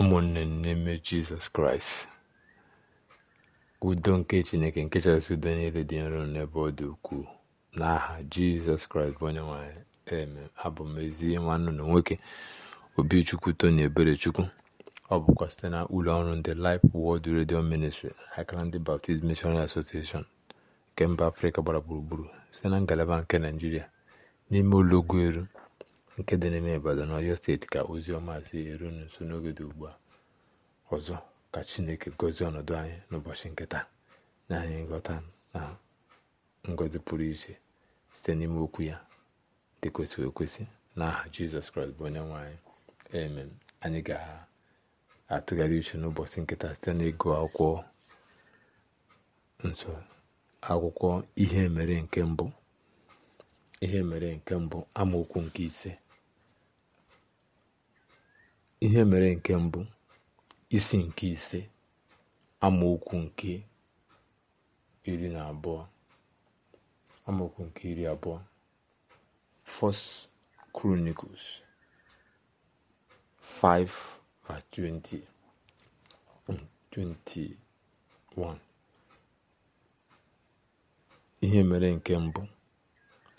ụmụnne m n'ime jizọs kraịst udo nke chineke nke chasị udo niile dị nro n'ebe ọ dị ukwuu n'aha jizọs kraịst bụ onye nwanyị eme abụ m ezi nwanne na nwoke obichukwu tony eberechukwu ọ bụkwa site na ụlọ ọrụ ndị lif Word redio Ministry akara ndị Baptist Missionary Association nke mba afrịka gbara gburugburu site na ngalaba nke naijiria n'ime ụlọ ụlọugwuelu nke dị n'ime Ibadan Ọyọ steeti ka ozi ọma si eru nso n'oge dị ugbu a ọzọ ka Chineke gozie ọnọdụ anyị n'ụbọchị nke taa anyị nghọta na ngọzi pụrụ iche site n'ime okwu ya dị kwesịrị ekwesị n'aha Jizọs Kraịst bụ onye nwe anyị anyị ga-atụgharị uche n'ụbọchị nkịta site n'ịgụ akwụkwọ nso akwụkwọ ihe mere nke mbụ ihe mere nke mbụ amaokwu nke ise ihe mere nke mbụ isi nke ise amaokwu nke iri na abụọ amaokwu nke iri abụọ First Chronicles 5:20 21 mm, ihe mere nke mbụ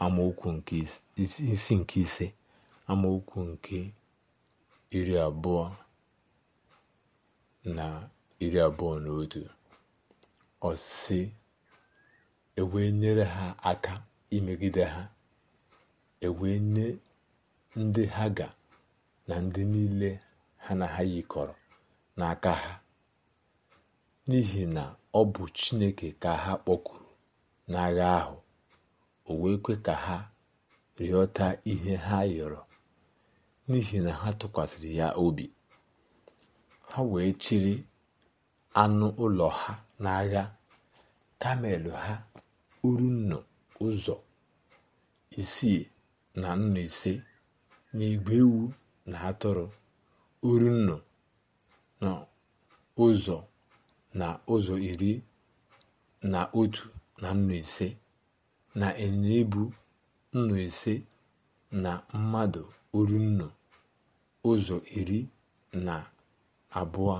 amaokwu nke isi nke ise amaokwu nke iri abụọ na iri abụọ na otu ọsị ewee nyere ha aka imegide ha ewee nye ndị ha ga na ndị niile ha na ha yikọrọ n'aka ha n'ihi na ọ bụ Chineke ka ha kpọkuru n'agha ahụ o wee kwe ka ha rịọta ihe ha yọrọ n'ihi na ha tụkwasịrị ya obi ha wee chịrị anụ ụlọ ha n'agha kamel ha urunnu ụzọ isii na nnụ ise na igwe ewu na atụrụ urunnu na ụzọ na ụzọ iri na otu na nnụ ise na ịnyịnya ibu nnụ ise na mmadụ urunnu ụzọ iri na abụọ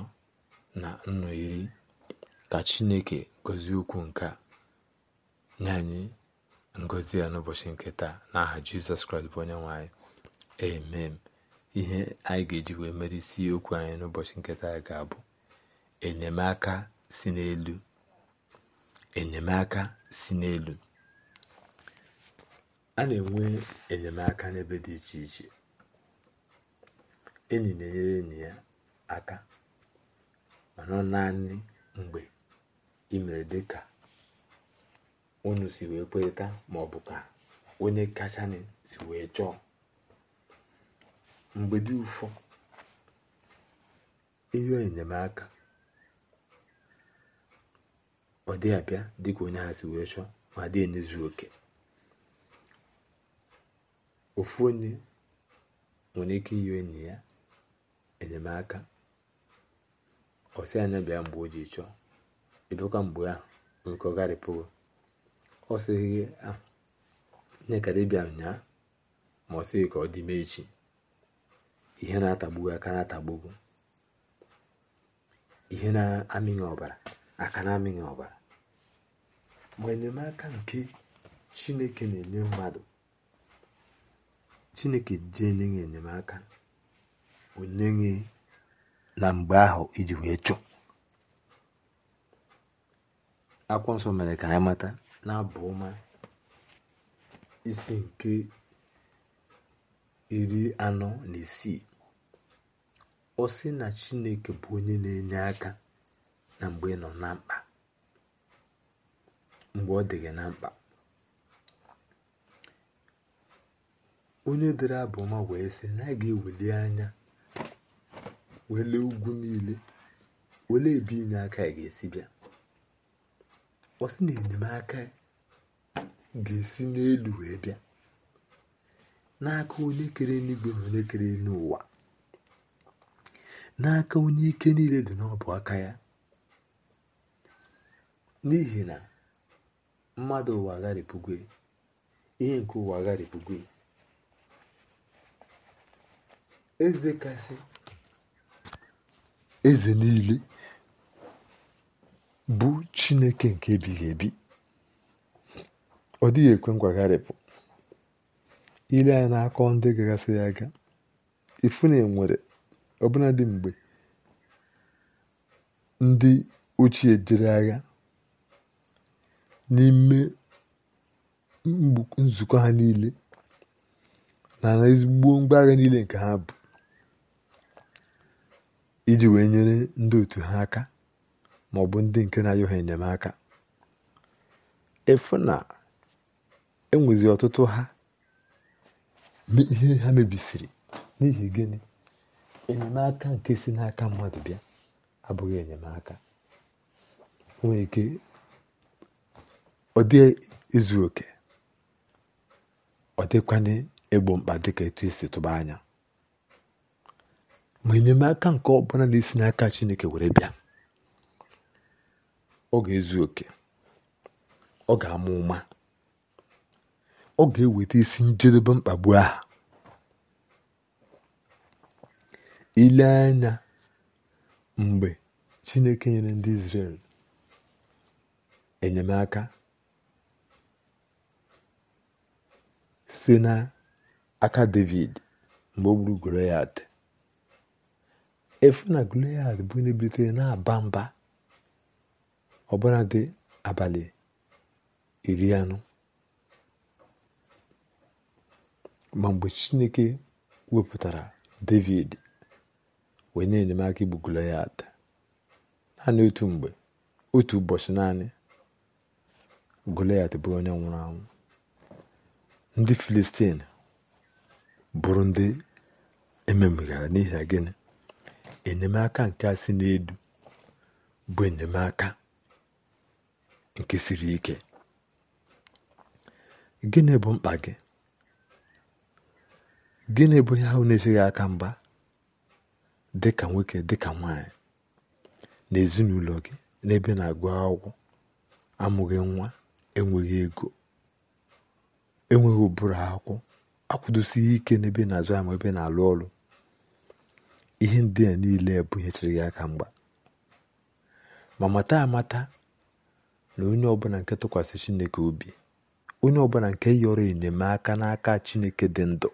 na nnọ iri ka Chineke gọzie okwu nke a nye anyị ngozi ya n'ụbọchị nke taa n'aha Jizọs Kraịst bụ onye nwe anyị amen ihe anyị ga-eji wee mere isi okwu anyị n'ụbọchị nke taa ga-abụ enyemaka si n'elu enyemaka si n'elu a na-enwe enyemaka n'ebe dị iche iche enyi na-enyere enyi ya aka mana ọ naanị mgbe ị mere dị ka unu si wee kwerịta ma ka onye kachanị si wee chọọ mgbe dị ụfọ ịrịọ enyemaka ọ dị abịa dịka onye ha si wee chọ ma dị enyezu oke ofu onye nwere ike ihe enyi ya enyemaka ọ anya bịa mgbe o ji chọọ ebekwa mgbe a nke ọ gharịpụgo ọ sịghị gị nye kara ịbịa ụnyaa ma ọ sịghị ka ọ dị ime echi ihe na-atagbugo aka na-atagbugo ihe na-amịghị ọbara aka na-amịghị ọbara ma enyemaka nke chineke na-enye mmadụ chineke ji enye enyemaka onye gị na mgbe ahụ iji wee chụ akwụkwọ nsọ mere ka anyị mata na abụ ọma isi nke iri anọ na isii ọ sị na chineke bụ onye na-enye aka na mgbe ị nọ na mkpa mgbe ọ dị gị na mkpa onye dere abụ ọma wee sị na a ga-ewuli anya wee ugwu niile wele ebe inye aka ga-esi bịa ọ na enyemaka ga-esi n'elu wee bịa n'aka onye kere n'igwe na onye kere n'ụwa n'aka onye ike niile dị n'ọbụ aka ya n'ihi na mmadụ ụwa agharịpụgwe ihe nke ụwa agharịpụgwe eze kasị eze niile bụ chineke nke ebighị ebi ọ dịghị ekwe ngwagharịpụ ile ya akọ ndị gagasịrị aga ifu na enwere dị mgbe ndị ochie jere agha n'ime nzukọ ha niile na na ezigbo ngwa agha niile nke ha bụ iji wee nyere ndị otu ha aka ma ọ bụ ndị nke na ayụ e ha enyemaka efu na enwezi ọtụtụ ha ihe ha mebisiri n'ihi gịnị enyemaka nke si n'aka mmadụ bịa abụghị enyemaka nwere ike ọ dị ezu oke ọ dịkwanye egbo mkpa dịka etu esi tụba anya ma enyemaka nke ọbụla na-esi n'aka chineke were bịa ọ ga-ezu oke ọ ga-ama ụma ọ ga-eweta isi njedebe mkpagbu aha ile anya mgbe chineke nyere ndị Izrel enyemaka site n'aka David mgbe o gburu Goliat efu na Goliath bụ na bilitere na-aba mba ọbụla dị abalị iri anọ ma mgbe Chineke wepụtara David wee na enyemaka igbu Goliath naanị otu mgbe otu ụbọchị naanị Goliath bụrụ onye nwụrụ anwụ ndị Filistin bụrụ ndị ememegara n'ihi gịnị enyemaka nke a si n'edu bụ enyemaka nke siri ike gịnị bụ mkpa gị gịnị bụ ihe ahụ na-echeghị aka dị dịka nwoke ka nwanyị na ezinụlọ gị n'ebe na-agụ akwụkwọ amụghị nwa enweghị ego enweghị ụbụrụ akwụkwọ akwụdosi ike n'ebe na-azụ ma ebe na-alụ ọrụ ihe ndị a niile bụ ihe chere gị aka mgba ma mata amata na onye ọbụla nke tụkwasị chineke obi onye ọbụla nke yọrọ enyemaka n'aka chineke dị ndụ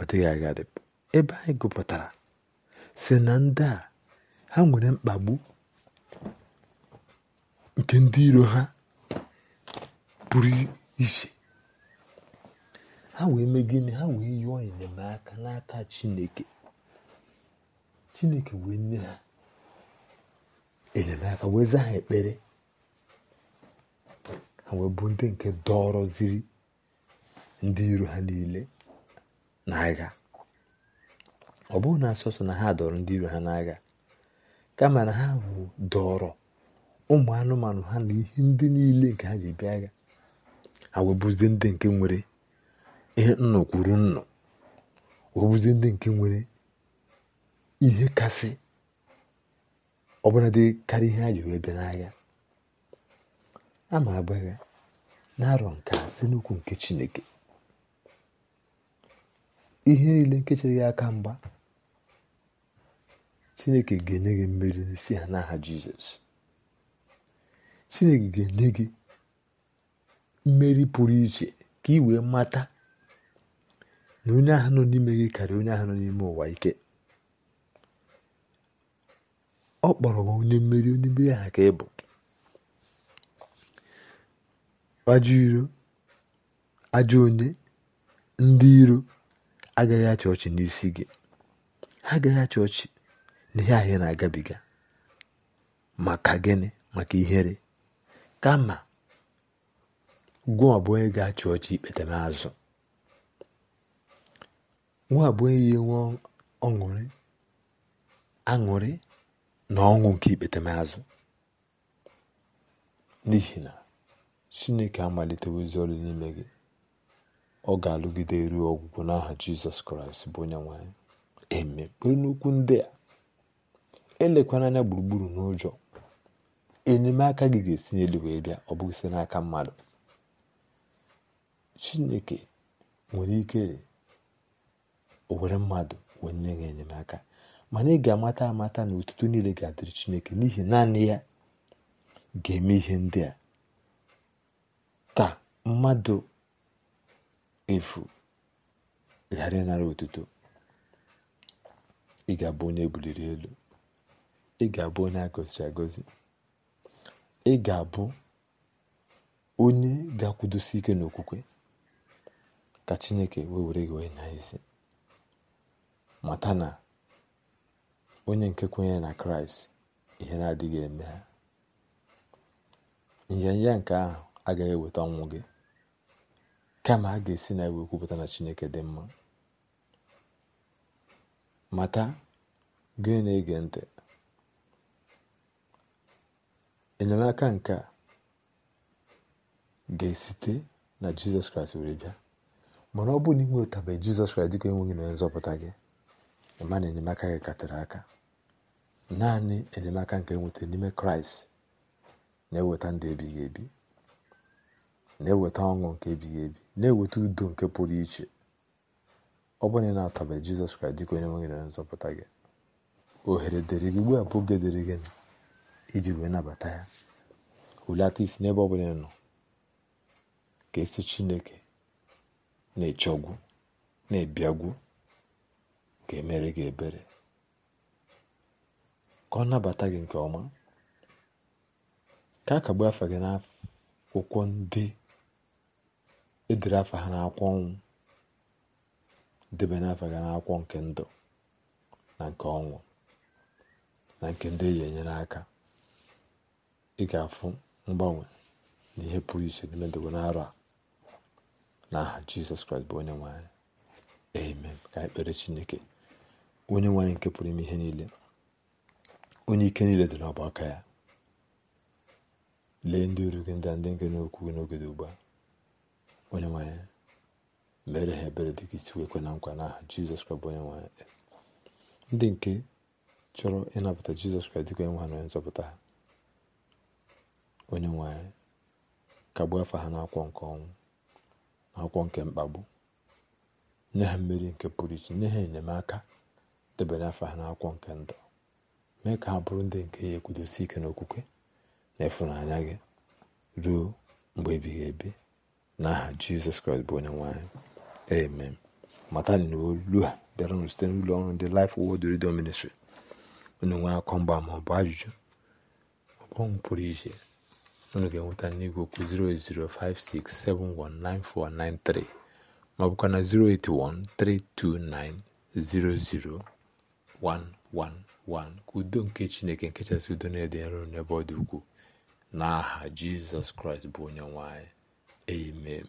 ọ dịghị agadị ebe anyị gụpụtara si na ndị a ha nwere mkpagbu nke ndị iro ha pụrụ iche ha wee mee gịnị ha wee yụọ enyemaka n'aka chineke chineke wee nye ha enyemaka wee zaa ha ekpere ha wee bụ ndị nke dọrọziri ndị iro ha niile n'agha ọ bụghị na asọsọ na ha dọrọ ndị iro ha n'agha kama na ha bụ dọrọ ụmụ anụmanụ ha na ihe ndị niile nke ha ji bịa agha ha wee bụzie ndị nke nwere ihe nnọ kwuru nnọ ọ bụzi ndị nke nwere ihe kasị ọbụladị karịa ihe a wee bịa n'agha ama agbagha na-arọ nke a site nke Chineke ihe niile nke ya aka mgba Chineke ga-enye gị mmeri n'isi ha n'aha Jizọs Chineke ga-enye gị mmeri pụrụ iche ka ị wee mata na onye ahụ nọ n'ime gị karịa onye ahụ nọ n'ime ụwa ike ọ kpọrọ m onye mmeri onye mmeri aha ka ị bụ ajọ iro ajọ onye ndị iro agaghị achị ọchị n'isi gị ha agaghị achị ọchị n'ihe ahịa na-agabiga maka gịnị maka ihere kama gwa ị ga-achị ọchị ikpete m azụ nwa bụ ya enwe ọṅụrị aṅụrị na ọṅụ nke ikpetemazụ n'ihi na chineke amalitewozi ọrụ n'ime gị ọ ga-alụgide ruo ọgwụgwọ n'aha jizọs kraịst bụ onye nwanyị eme kpere n'okwu ndị a elekwara anya gburugburu n'ụjọ enyemaka gị ga-esi n'elu wee bịa ọ bụghị site n'aka mmadụ chineke nwere ike o were mmadụ wee nye ya enyemaka mana ị ga-amata amata na otuto niile ga-adịrị chineke n'ihi naanị ya ga-eme ihe ndị a ka mmadụ efu ghara ịnara otuto ị ga-abụ onye ebuliri elu ị ga-abụ onye agọziri agọzi ị ga-abụ onye ga-akwụdosi ike n'okwukwe ka chineke wee were gị wee nya isi mata na onye nke kwenyere na kraịst ihe na-adịghị eme ha nyanya nke ahụ agaghị eweta ọnwụ gị kama a ga-esi na iwe kwupụta na chineke dị mma mata gị na-ege ntị enyemaka nke a ga-esite na jizọs kraịst were bịa mana ọ bụrụ na ị nwetabeghị jizọs kraịst dịka enweghị na nzọpụta gị ịma enyemaka gị katara aka naanị enyemaka nke nweta n'ime kraịst na-eweta ndụ ebighị ebi na-eweta ọṅụ nke ebighị ebi na-eweta udo nke pụrụ iche ọ bụrụ na ị na jizọs kraịst dịka onye nwe gị na nzọpụta gị ohere dịrị gị ugbu a bụ oge dịrị gị iji wee nabata ya hulata isi n'ebe ọ bụla nọ ka esi chineke na-echegwu na-ebiagwu ka emere gị ebere ka ọ nabata gị nke ọma ka a kagbuo afa gị n'akwụkwọ ndị edere afa ha n'akwụkwọ ọnwụ debe n'afa gị n'akwụkwọ nke ndụ na nke ọnwụ na nke ndị eyi enyere aka ị ga-afụ mgbanwe na ihe pụrụ iche n'ime ndụ n'arọ a n'aha Jizọs Kraịst bụ onye nwe anyị amen ka ekpere Chineke onye nwe anyị nke pụrụ ime ihe niile onye ike niile dị n'ọba aka ya lee ndị oru gị ndị ndị nke n'okwu gị n'oge dị ugbu a onye nwe mere ha ebere dịka isi wee kwe na nkwa n'aha jizọs kraịst onye nwe anyị ndị nke chọrọ ịnapụta jizọs kraịst dịka onye ha na onye nzọpụta ha onye nwe kagbu afọ ha n'akwụkwọ nke ọnwụ n'akwụkwọ nke mkpagbu nye ha mmeri nke pụrụ iche nye ha enyemaka debanye afọ ha n'akwụkwọ nke ndụ mee ka ha bụrụ ndị nke ya ekwudosi ike n'okwukwe na ịfụnanya gị ruo mgbe ebighị ebi n'aha jizọs kraịst bụ onye nwanyị amen matani na olu a bịaranụ site n'ụlọ ọrụ ndị Life wod Radio Ministry unu nwee akọ mgba ma ọ bụ ajụjụ ọbọnwụ pụrụ iche unu ga-enweta n'igwe okwu 08056719493 ma ọ bụkwa na 081329009 111 ka udo nke chineke nke chasị udo na-ede nro n'ebe ọ dị ukwuu n'aha jizọs kraịst bụ onye nwanyị anyị amen